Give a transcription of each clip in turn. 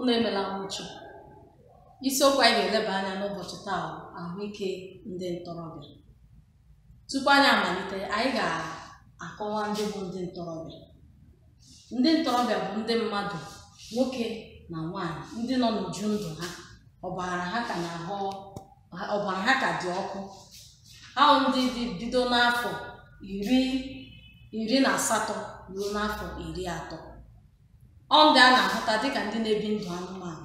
unu emela nwụchi isiokwu anyị ga-eleba anya n'ụbọchị taa ahụike ndị ntorobịa tupu anyị amalite anyị ga-akọwa ndị bụ ndị ntorobịa ndị ntorobịa bụ ndị mmadụ nwoke na nwanyị ndị nọ n'uju ndụ ha ọbara ha ka dị ọkụ ahụ ndị dị bido n'afọ iri iri na asatọ ruo n'afọ iri atọ ọ ndị a na-ahụta dịka ndị na-ebi ndụ anụmanụ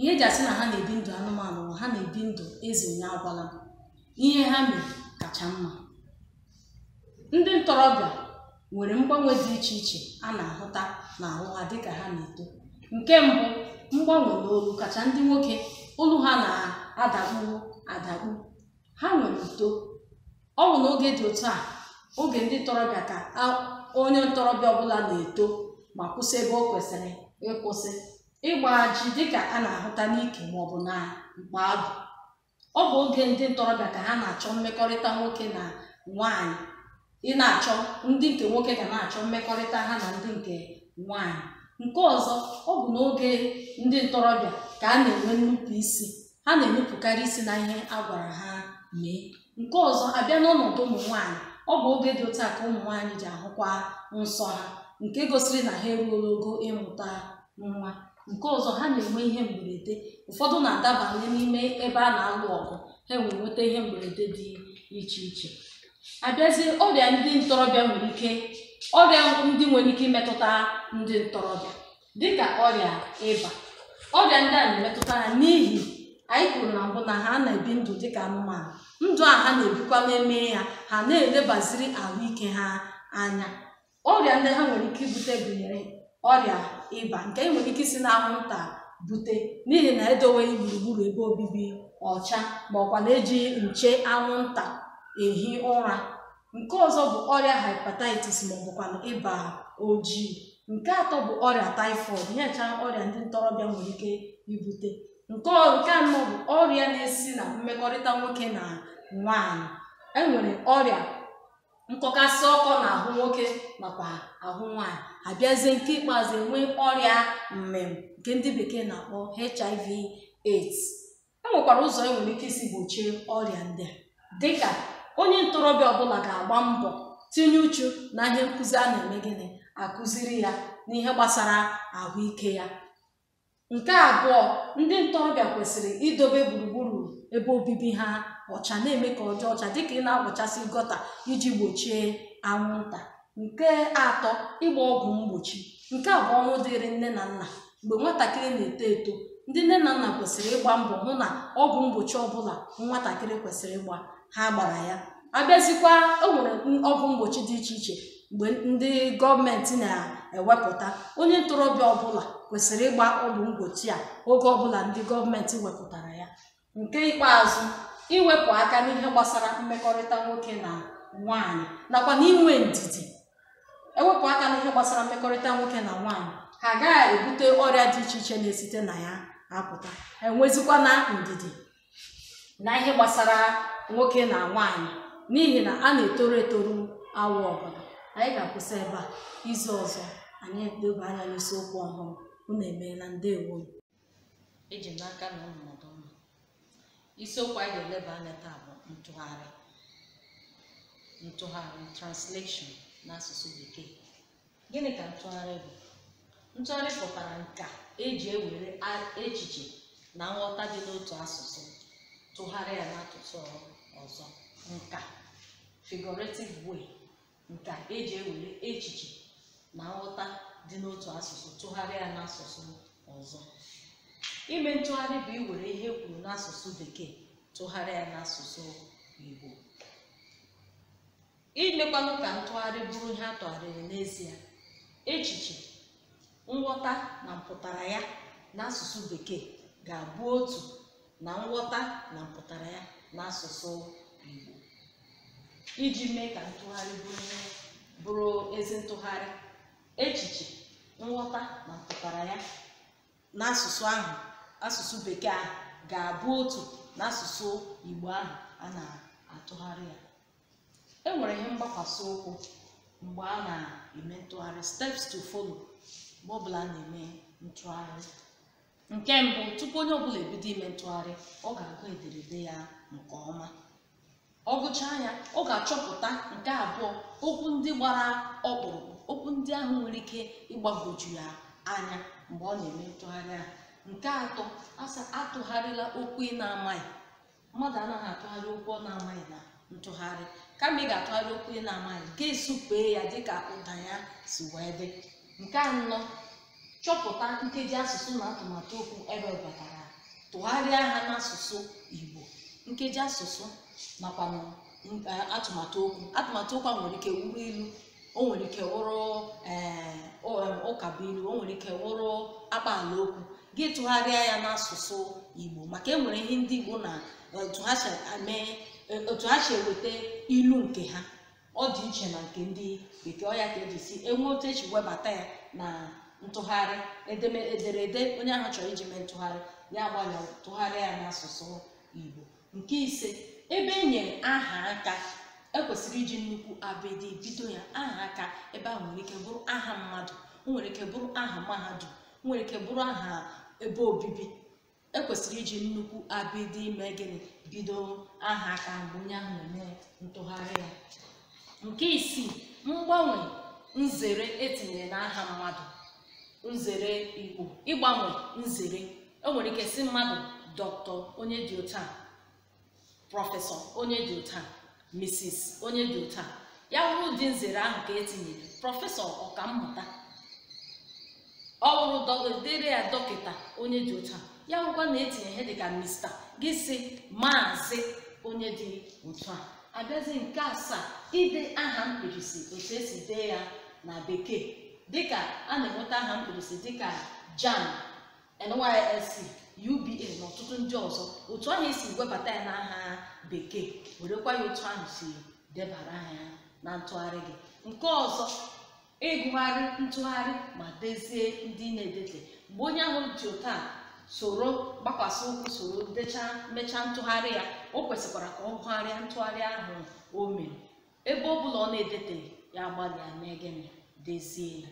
ihe eji asị na ha na-ebi ndụ anụmanụ ma ha na-ebi ndụ eze onye agwala ihe ha mere kacha mma ndị ntorobịa nwere mgbanwe dị iche iche a na-ahụta n'ahụ ha dịka ha na-eto nke mbụ mgbanwe n'olu kacha ndị nwoke olu ha na-adakpuo adakpu ha nwere uto ọ bụ n'oge dị otu a oge ndị ntorobịa ka onye ntorobịa ọbụla na-eto ma kwụsị ebe o kwesịrị ịkwụsị ịgba ji dịka a na-ahụta n'ike maọbụ na mkpa agụ ọ bụ oge ndị ntorobịa ka ha na-achọ mmekọrịta nwoke na nwanyị ị na-achọ ndị nke nwoke ga na-achọ mmekọrịta ha na ndị nke nwanyị nke ọzọ ọ bụ n'oge ndị ntorobịa ka a na-enwe nnupụ isi ha na-enupụkarị isi na ihe a gwara ha mee nke ọzọ abịa n'ọnọdụ ụmụ nwaanyị ọ bụ oge dị otu ka ụmụ nwaanyị ji ahụkwa nsọ ha nke gosiri na ha eruola ogo ịmụta nwa nke ọzọ ha na-enwe ihe mberede ụfọdụ na-adabanye n'ime ebe a na-alụ ọgụ ha enwere nweta ihe mberede dị iche iche abịazie ọrịa ndị ntorobịa nwere ike ọrịa ndị nwere ike imetụta ndị ntorobịa dịka ọrịa ịba ọrịa ndị a na-emetụta ha n'ihi anyị kwuru na mbụ na ha na-ebi ndụ dịka anụmanụ ndụ a ha na-ebikwa n'eme ya ha na-elebaziri ahụike ha anya ọrịa ndị ha nwere ike ibute gụnyere ọrịa ịba nke e nwere ike isi na anwụnta bute n'ihi na edoweghị gburugburu ebe obibi ọcha ma ọkwa na-eji nche anwụnta ehi ụra nke ọzọ bụ ọrịa hepatitis ma ọ bụkwa ịba ojii nke atọ bụ ọrịa taịfọịd nyecha ọrịa ndị ntorobịa nwere ike ibute nke anọ bụ ọrịa na-esi na mmekọrịta nwoke na nwanyị enwere ọrịa nkọkasị ọkọ na-ahụ nwoke nakwa ahụ nwanyị abịazie nke ikpeazụ enwe ọrịa mmem nke ndị bekee na-akpọ HIV AIDS e nwekwara ụzọ e nwere ike isi gbochie ọrịa ndị a dịka onye ntorobịa ọbụla ga-agba mbọ tinye uchu na ihe nkụzi a na-eme gịnị akụziri ya n'ihe gbasara ahụike ya nke abụọ ndị ntorobịa kwesịrị idobe gburugburu ebe obibi ha ọcha na-eme ka ọ dị ọcha dịka ị na-akpọchasị gọta iji gbochie anwụnta nke atọ ịgba ọgwụ mgbochi nke a bụ ọrụ dịrị nne na nna mgbe nwatakịrị na-eto eto ndị nne na nna kwesịrị ịgba mbọ hụ na ọgwụ mgbochi ọbụla nwatakịrị kwesịrị ịgba ha gbara ya abịazikwa e nwere ọgwụ mgbochi dị iche iche mgbe ndị gọọmenti na-ewepụta onye ntorobịa ọbụla kwesịrị ịgba ọgwụ mgbochi a oge ọbụla ndị gọọmenti wepụtara ya nke ikpeazụ iwepụ aka n'ihe gbasara mmekọrịta nwoke na nwanyị nakwa n'inwe ndidi ewepụ aka n'ihe gbasara mmekọrịta nwoke na nwaanyị ha agaghị ebute ọrịa dị iche iche na-esite na ya apụta enwezikwa na ndidi na ihe gbasara nwoke na nwaanyị n'ihi na a na-etoro etoro awụ ọbụla anyị ga-akwụsị ebe a izu ọzọ anyị edobe anya n'isiokwu ọhụrụ unu emeela ndewo eji n'aka na ụmụdụ isiokwu anyị ga-eleba anya taa bụ ntụgharị ntụgharị translation n'asụsụ bekee gịnị ka ntụgharị bụ ntụgharị pụtara nka e eji e ewere echiche na nghọta dị n'otu asụsụ tụgharịa ya n'asụsụ ọzọ nka figurative way nka eji ewere echiche na nghọta dị n'otu asụsụ tụgharịa ya n'asụsụ ọzọ ime ntụgharị bụ iwere ihe kwuru n'asụsụ bekee tụgharịa n'asụsụ igbo imekwanụ ka ntụgharị bụrụ ihe a tụgharịrị n'ezie echiche nghọta na mpụtara ya n'asụsụ bekee ga-abụ otu na nghọta na mpụtara ya n'asụsụ igbo iji mee ka ntụgharị bụrụ ezi ntụgharị echiche nghọta na mpụtara ya n'asụsụ ahụ asụsụ bekee ahụ ga-abụ otu n'asụsụ igbo ahụ a na-atụgharị ya e nwere ihe mgbakwasị ụkwụ mgbe a na-eme ntụgharị steps to follow mgbe ọbụla a na-eme ntụgharị nke mbụ tupu onye ọbụla ebido ime ntụgharị ọ ga-agụ ederede ya nke ọma ọ gụchaa ya ọ ga-achọpụta nke abụọ okwu ndị gbara ọkpụrụkpụ okwu ndị ahụ nwere ike ịgbagoju ya anya mgbe ọ na-eme ntụgharị ahụ nke atọ asa atụgharịla okwu ị na-amaghị mmadụ anaghị atụgharị okwu ọ na-amaghị na ntụgharị kama ị ga-atụgharị okwu ị na-amaghị nke esupee ya dịka ụda ya si wee dị nke anọ chọpụta nkeji asụsụ na atụmatụ okwu ebe batara tụgharịa ha n'asụsụ igbo nkeji asụsụ nakwa e, atụmatụ okwu atụmatụ okwu a nwere ike wuru ilu o nwere ike wụrụ ụkabuilu eh, o nwere ike wụrụ akpaala okwu gị tụgharịa ya n'asụsụ igbo maka e nwere ihe ndị igbo na eh, eh, otu ha si eweta ilu nke ha ọ dị iche na nke ndị bekee ọya ka eji si enwe otu eji webata ya na ntụgharị ederede onye ahụ chọrọ iji mee ntụgharị ya gbalịa tụgharịa ya n'asụsụ igbo nke ise ebe e aha aka ekwesịrị iji nnukwu abịdị bido ya aha aka ebe ahụ nwere ike bụrụ aha mmadụ nwere ike bụrụ aha mahadum nwere ike bụrụ aha ebe obibi ekwesịrị iji nnukwu abịdị ime gịnị bido aha aka mgbe onye ahụ na-eme ntụgharị ya nke isii mgbanwe nzere etinyere n'aha mmadụ nzere igbo ịgbanwe nzere e nwere ike si mmadụ dọkịta onye dị otu a prọfesọ onye dị otu a mrs onye dị otu a ya wụrụ dị nzere ahụ ka etinyere prọfesọ ọkammụta ọ wụrụ ya dọkịta onye dị otu ya wụkwa na etinye ihe dịka mista gị si maazị onye dị otu a abịazi nke asaa ide aha mkpirisi otu esi dee ya na bekee dịka a na-enweta aha mkpirisi dịka jam nysc uba na ọtụtụ ndị ọzọ otu ahụ esi webata ya n'aha bekee werekwa ya otu ahụ si debara ya na ntụgharị gị nke ọzọ ịgụgharị ntụgharị ma dezie ndị na-edete mgbe onye ahụ ji ụta soro gbakwasị ụkwụ soro dechaa mechaa ntụgharị ya o kwesịkwara ka ọ gụgharịa ntụgharị ahụ o mere ebe ọ bụla ọ na-edete ya gbalịa mee gịnị dezie ya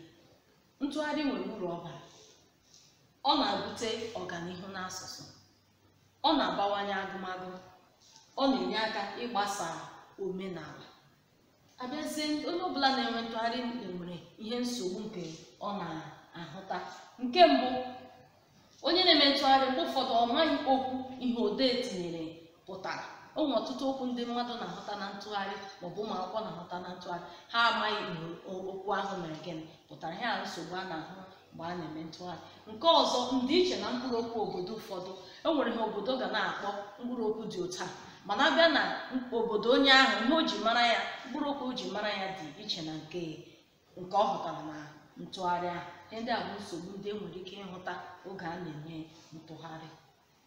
ntụgharị nwere uru ọ bara ọ na abute ọganihu n'asụsụ ọ na-abawanye agụmagụ ọ na-enye aka ịgbasa omenala abịazie onye ọbụla na-enwe ntụgharị nwere ihe nsogbu nke ọ na-ahụta nke mbụ onye na-eme ntụgharị mgbe ụfọdụ ọ maghị okwu ihe odee tinyere pụtara o nwere ọtụtụ okwu ndị mmadụ na-ahụta na ntụgharị maọbụ ụmụ akwụkwọ na-ahụta na ntụgharị ha amaghị okwu ahụ mere gịnị pụtara ihe a nsogbu a na-ahụ mgbe a na-eme ntụgharị nke ọzọ ndịiche na mkpụrụ okwu obodo ụfọdụ e nwere ha obodo ga na-akpọ mkpụrụ okwu dị ụta mana abịa na obodo onye ahụ ihe o ji mara ya mkpụrụ okwu o ji mara ya dị iche na nke nke ọ hụtara na ntụgharị ahụ ndị a bụ nsogbu ndị e nwere ike ịhụta oge a na-eme ntụgharị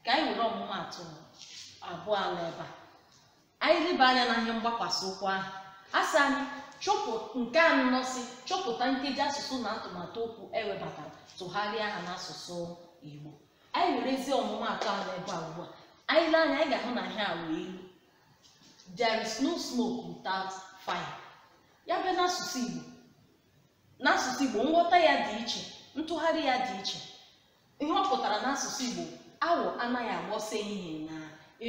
ka anyị were ọmụmaatụ abụọ ala ebe a anyị leba anya na ihe mgbakwasị ụkwụ ahụ asị anyị chọpụ nke anọ si chọpụta nkeji asụsụ na atụmatụ okwu ewebatara tụgharịa ha n'asụsụ igbo anyị were ezi ọmụmatụ ahụ ebe a ugbu a anyị lee anya anyị ga-ahụ na ihe a wee ilu there is no smoke without fire ya bụ n'asụsụ igbo n'asụsụ igbo nghọta ya dị iche ntụgharị ya dị iche ihe ọ pụtara n'asụsụ igbo awọ anaghị agbọsa ehihie na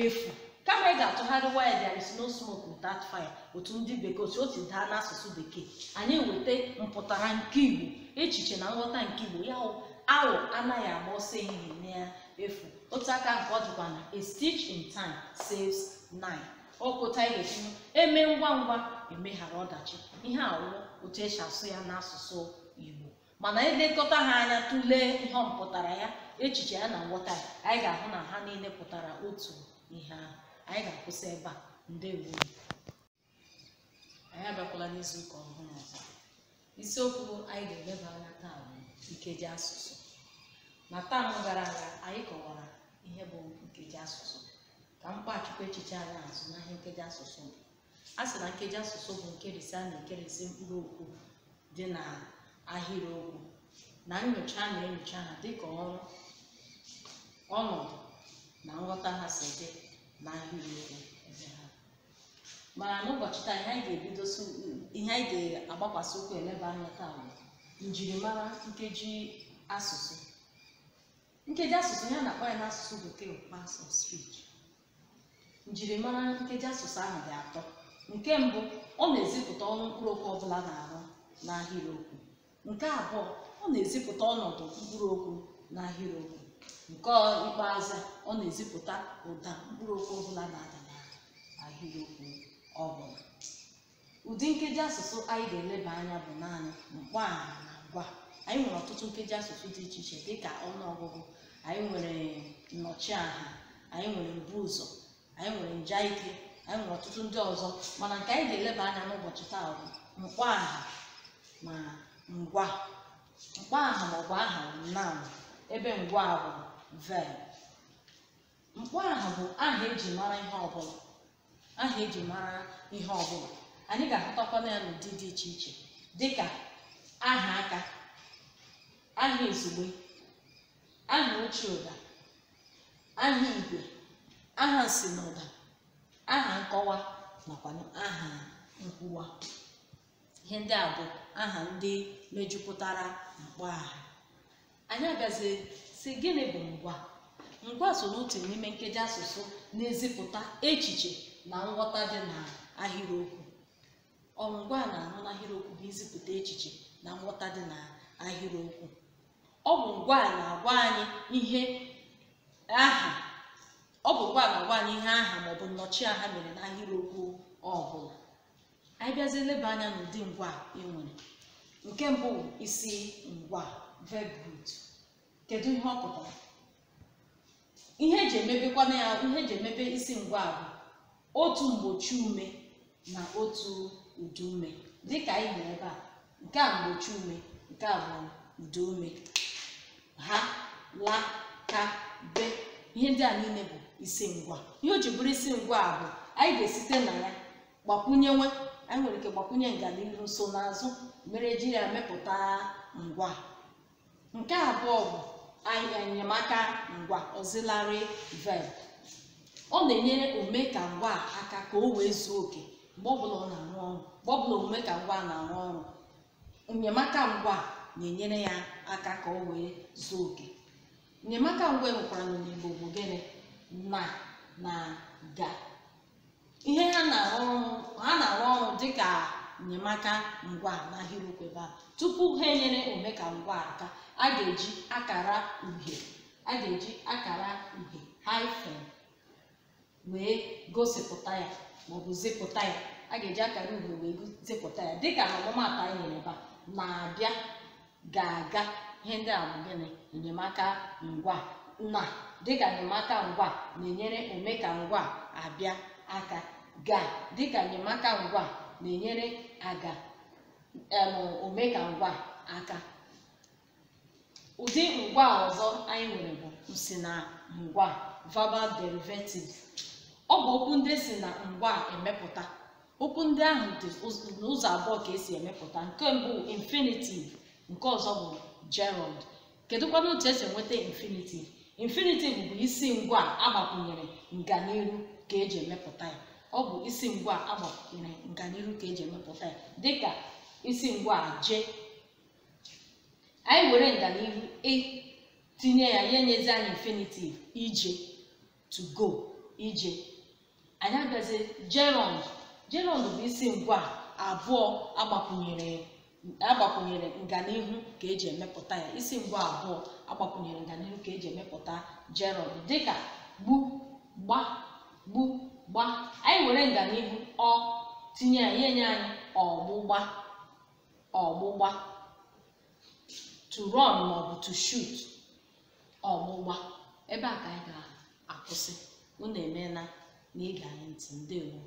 efu kama ị ga-atụgharị waya there sno no smoke without fire otu ndị bekee otu o daa n'asụsụ bekee anyị weta mpụtara nke igbo echiche na nghọta nke igbo ya awụ anaghị agba ọsọ ehihie efu otu aka nke ọ dịkwa na a stitch in time saves nine ọkụta ihe etinye eme ngwa ngwa emeghara ọdachi ihe awụ otu esi asụ ya n'asụsụ igbo mana edekọta ha anya tụlee ihe ọ ya echiche ya na nghọta ya anyị ga-ahụ na ha niile pụtara otu ihe ahụ anyị ga-akwụsị ebe a ndị ndewo anyị abịakwala n'izuụka ọhụrụ ọzọ isiokwu anyị ga-eleba anya taa bụ nkeji asụsụ na taam gara aga anyị kọwara ihe bụ nkeji asụsụ ka m kpachikwa echiche anyị azụ n'ahịa nkeji asụsụ a sị na nkeji asụsụ bụ nkerịsị a na-ekerịsị mkpụrụ okwu dị na ahịrịokwu na nyocha na-enyocha ha dịka ọrụ ọnọdụ na nghọta ha si dị n'ahịrịokwu mana n'ụbọchị taa ihe anyị ga-ebidosi ihe anyị ga-agbakwasị ụkwụ eleba anya taa bụ njirimara nkeji asụsụ nkeji asụsụ ya na-akpọ ya n'asụsụ bekee parts of njirimara nkeji asụsụ ahụ dị atọ nke mbụ ọ na-ezipụta ọrụ mkpụrụ okwu ọbụla na-arụ n'ahịrịokwu nke abụọ ọ na-ezipụta ọnọdụ mkpụrụ okwu n'ahịrịokwu nke ikpeazụ ọ na-ezipụta ụda mkpụrụ okwu ọbụla na-ada n'ahịrịokwu ọbụla ụdị nkeji asụsụ anyị ga-eleba anya bụ naanị mkpọaha na ngwa anyị nwere ọtụtụ nkeji asụsụ dị iche iche dịka ọnụọgụgụ anyị nwere nnọchiaha anyị nwere mbu ụzọ anyị nwere nja ike anyị nwere ọtụtụ ndị ọzọ mana nke anyị ga-eleba anya n'ụbọchị taa bụ mkpọaha ma ngwa mkpọaha ma ọ bụ aha naanị ebe ngwa bụ vel mkpọ aha bụ aha eji mara ihe ọbụla aha eji mara ihe ọbụla anyị ga na ya n'ụdị dị iche iche dịka aha aka aha ezugbe aha ochie ụda aha igwe aha nsinaụda aha nkọwa nakwa aha nkwuwa ihe ndị a bụ aha ndị mejupụtara mkpọ aha anyị abịazi si gịnị bụ ngwa ngwa so n'otu n'ime nkeji asụsụ na-ezipụta echiche na nghọta dị na ahịrịokwu ọngwa na-anụ n'ahịrịokwu bụ izipụta echiche na nghọta dị na ahịrịokwu ọ bụ ngwa na-agwa anyị ihe aha ọ bụ ngwa na-agwa anyị ihe aha maọbụ nnọchiaha mere n'ahịrịokwu ọbụla anyị bịazie anya n'ụdị ngwa ị nwere nke mbụ isi ngwa verb kedu ihe ọ pụtara ihe eji na ya ihe eji emebe isi ngwa bụ otu mgbochi ume na otu udu ume dịka anyị hụrụ ebe a nke a mgbochi ume nke a bụ udu ume ha la ka be ihe ndị a niile bụ isi ngwa ihe o ji bụrụ isi ngwa bụ anyị ga-esite na ya gbakwunyewe anyị nwere ike gbakwunye nganihu nsonaazụ mere jiri ya mepụta ngwa nke abụọ bụ enyemaka ngwa auxiliary verb ọ na-enyere ome ka ngwa aka ka o wee zuo oke mgbe omume na-arụ ọrụ ka ngwa na-arụ ọrụ enyemaka ngwa na-enyere ya aka ka o wee zuo oke enyemaka ngwa nwekwara n'Igbo bụ gịnị na na ga ihe ha na-arụ ọrụ dịka nyemaka ngwa n'ahịrịokwu ebe a tupu ha enyere omeka ngwa aka a ga-eji akara uhie a ga-eji akara uhie wee gosipụta ya maọbụ zipụta ya a ga-eji akara uhie wee zipụta ya dịka ọmụmatụ anyị nyere ebe a na-abịa ga-aga ihe ndị a bụ gịnị enyemaka ngwa na dịka enyemaka ngwa na-enyere omeka ngwa abịa aka ga dịka enyemaka ngwa na-enyere aga omega ngwa aka ụdị ngwa ọzọ anyị nwere bụ nsi na ngwa verbal derivatives ọ bụ okwu ndị si na ngwa emepụta okwu ndị ahụ dị n'ụzọ abụọ ka esi emepụta nke mbụ infinitive nke ọzọ bụ gerund kedụkwana otu esi nweta infinitive infinitive bụ isi ngwa agbakwunyere nganiru ka eji emepụta ya ọ bụ isi ngwa agbakwunyere nganihu ka eji emepụta ya dịka isi ngwa je anyị were nganihu e tinye ya ya nyezi anyị infinitive ije to go ije anyị abịazi gerund gerund bụ isi ngwa abụọ agbakwunyere agbakwunyere nganihu ka eji emepụta ya isi ngwa abụọ agbakwunyere nganihu ka eji emepụta gerund dịka gbu gba gbu gba anyị were nganihu ọ tinye ya nye anyị ọgbụgba ọgbụgba to run maọbụ to shoot ọgbụgba ebe a ka anyị ga-akwụsị unu emeela na ịga anyị ntị ndewo